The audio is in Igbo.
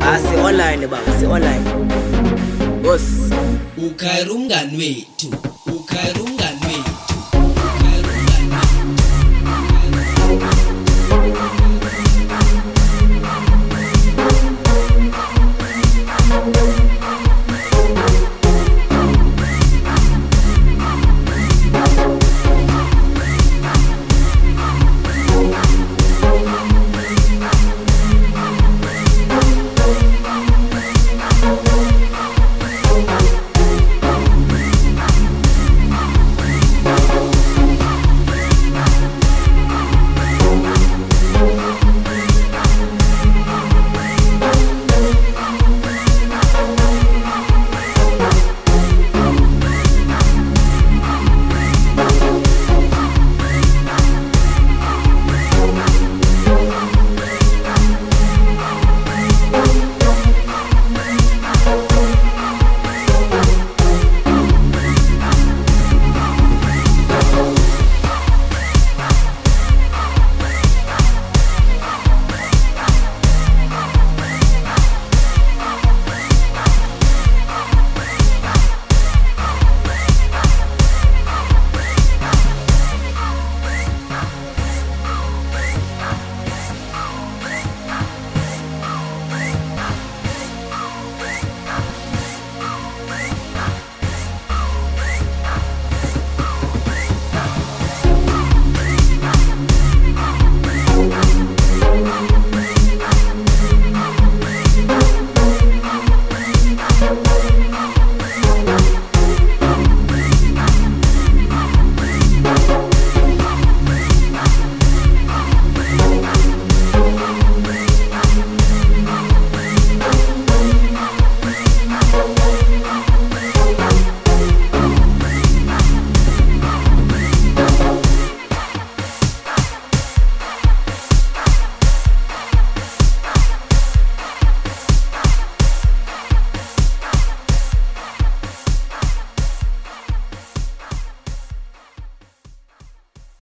Ah si online baba si online. Boss. Ukhayira umngani wethu.